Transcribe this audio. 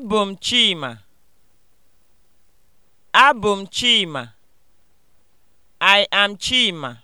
Abụ m Chima. Abụ m Chima. I am Chima.